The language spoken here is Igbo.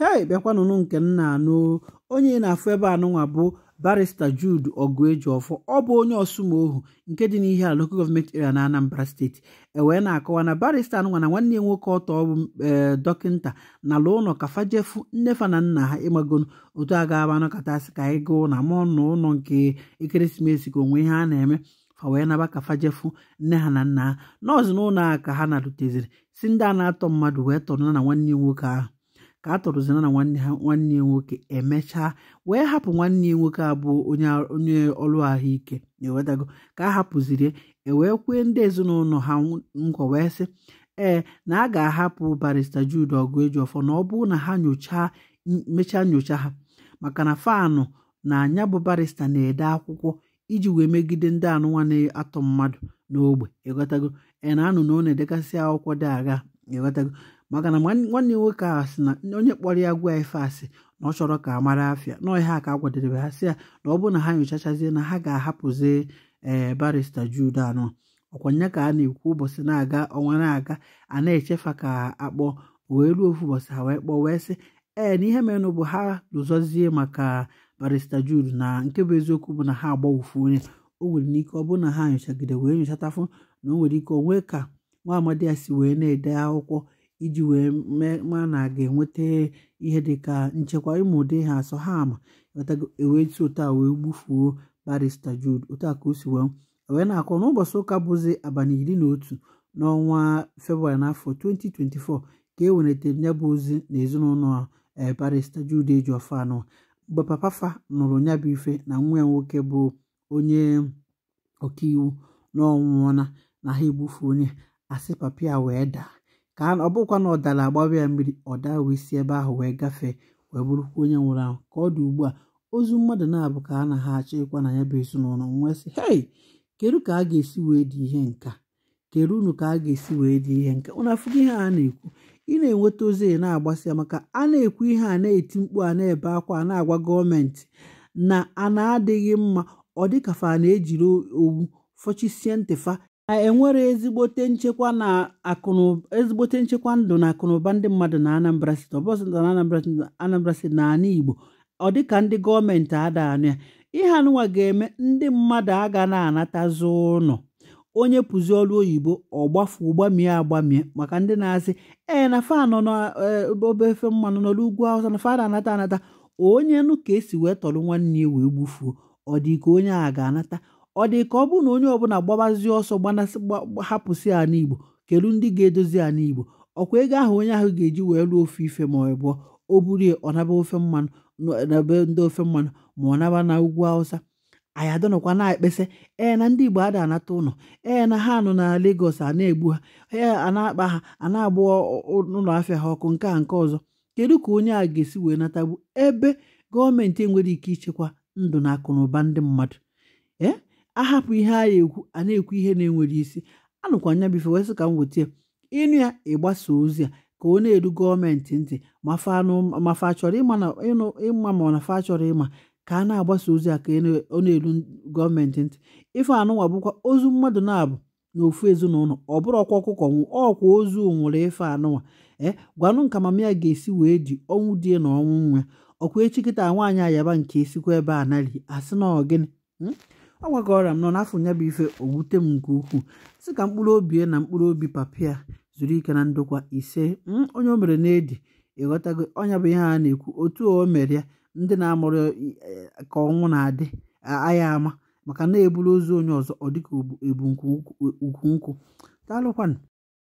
hei bịakwanụnụ nke nna anụ onye na-afụ ebe anụnwa bụ barista Jude ọfọ ọ bụ onye ọsụmohu nke dị n'ihe a local gọọmenti area na Anambra steeti ewee na-akọwa na barista anụnwa na nwanne nwoke ọtọ ọbụ e, dọkịnta na ala ụlọ ka fajefu nnefa na nna ha ịmagonu otu a ga-aba anọkatasị ka anyị gụụ na ma ọnụ ụlọ nke ekeresimesi ka onwe ihe a na-eme fa wee naba ka fajefu nne ha na nna ha nọọsụ n'ụlọ a ka ha na-aruteziri si ndị a na-atọ mmadụ wee tọrọ na nwanne nwoke ahụ ka a tọrụzina na nwanne ha nwanne ya nwoke emechaa wee hapụ nwanne ya nwoke abụọ onye ọlụ ahụike ewetago ka a hapụziri ewee kwee ndị ezinụlọ ha nkwa wee sị ee na a ga-ahapụ barista Jude ọgụ eji ọfọ na ọ bụrụ na ha nyochaa mechaa nyocha ha maka na fanụ na anya bụ barista na-ede akwụkwọ iji wee megide ndị anụnwa na-atọ mmadụ n'ogbe ịghọtago e, na anụ na ọ na-edegasị akwụkwọ dị e agha maka na nwanne m nwoke a sị na onye kpọrọ ya gwa ife asị na ọ chọrọ ka a mara afịa na ọhịa ka a gwadedebe ha sị ya na ọ bụ na ha nyochachazie na ha ga-ahapụzi ee eh, barista Jude anọ ọkwanye ka a na-ekwu ụbọchị na-aga ọnwa na-aga a na-echefa ka akpọ wee ruo ofu ụbọchị ha wee kpọọ wee sị ee eh, na ihe merenụ bụ ha lụzọzie maka barista Jude na nke bụ eziokwu bụ na ha agbawufu onye o nwere n'ike ọ bụ na ha nyochagide wee nyochatafụ na o nwere ike onwe ka nwa amadi ya si wee na-ede akwụkwọ iji wee mee ma na ga-enweta ihe dịka nchekwa ịmụ ụdị ha asọ ha ama ewetụ e otu wee gbufuo barista Jude otu ka o si wee e wee na-akọ n'ụbọchị ụka bụzi abalị iri na otu n'ọnwa febrụwarị n'afọ 2024 ka e welitere ya bụ ozi na ezinụlọ eh, barista eji Ejiofor anọ mgbe papa fa nụrụ ya bụ ife na nwa ya nwoke bụ onye ọkaiwu n'ọnwụọna na ha egbufu onye asị papa wee daa ka ọ bụkwa na ọ dara agbawa ya mmiri ọ daa wee ebe ahụ wee gafee wee bụrụkwa onye nwụrụ ahụ ka ọ dị ugbu a ozu mmadụ na-abụ ka a na ha achọ ịkwa na ya bụ ezinụlọ nwee hei kedu ka a ga-esi wee dị ihe nka kedu unu ka a ga-esi wee dị ihe nka ụnụ ihe a na-ekwu ị na-enweta ozi na agbasị maka a na-ekwu ihe a na-eti mkpu a na-ebe akwa a na-agwa gọọmenti na a na-adịghị mma ọ dịka na-ejiri owu fọchisie ntịfa na enwere ezigbote nchekwa na akụnụ ezigbote nchekwa ndụ na akụnụba ndị mmadụ na Anambra State ọbọsụta na Anambra State na ala Igbo ọ dịka ndị gọọmenti adaanụ ya ihe anụwa ga-eme ndị mmadụ aga na anata ụlọ onye pụzi ọrụ oyibo ọgbafu gbamie agbamie maka ndị na-asị ee na fanọ n'obe e, efe mmanụ nọ ugwu awụsa na fada anata anata onye nụ ka esi wee tọrọ nwanne ya wee gbufuo ọ dị ka onye a ga-anata ọ dị ka ọ bụrụ na onye ọbụla gbabazi ọsọ gbanasị hapụsị ala igbo kelu ndị ga-edozi ala igbo ọkwa ego ahụ onye ahụ ga-eji wee lụọ ofe ife ma ọ bụ o burie ọ naba ofe mmanụ n'ebe ndị ofe mmanụ ma ọ naba na ugwu awụsa anyị adọnọkwa na ekpesị ee na ndị igbo ada anata ụlọ ee na ha nọ na Lagos a na-egbu ha ee a na-akpa ha a na-agba ụlọ afịa ha ọkụ nke a nke ọzọ kedu ka onye a ga-esi wee natagbu ebe gọọmenti enwere ike ichekwa ndụ na akụ na ụba ndị mmadụ ee ahapụ ihe a ekwu a na-ekwu ihe na-enwere isi anụkwa anya bife wee ka m weta ịnụ ya ịgbasa ozi a ka ọ na-eru gọọmenti ntị ma fa chọrọ ịma ma na fa chọrọ ịma ka a na-agbasa ozi a ka ọ na-eru gọọmenti ntị ife anụnwa bụkwa ozu mmadụ na-abụ n'ofu ezinụlọ ọ bụrụ ọkwa ọkụkọ ọkwa ozu nwụrụ ife anụnwa e gwanụ nka mama ya ga-esi wee ji ọnwụ di na ọnwụ nwa ọkwa echi kịta nwaanyị ayaba nke esikwa ebe a nari asị na ọ gịnị hmm? ọ ọrịa m nọ n'afọ nya ife owute m nke ukwuu sị ka mkpụrụ obi na mkpụrụ obi papia zuru ike na ndokwa ise hmm, onye o mere na-edi ịghọtago ọnya bụ ihe a na-ekwu otu o mere ya ndị na-amụrụ e, ka ọnwụ na-adị agha ama maka na-eburu ozu onye ọzọ ọ dịka ebu nkwu e, nkwụ daalụkwanụ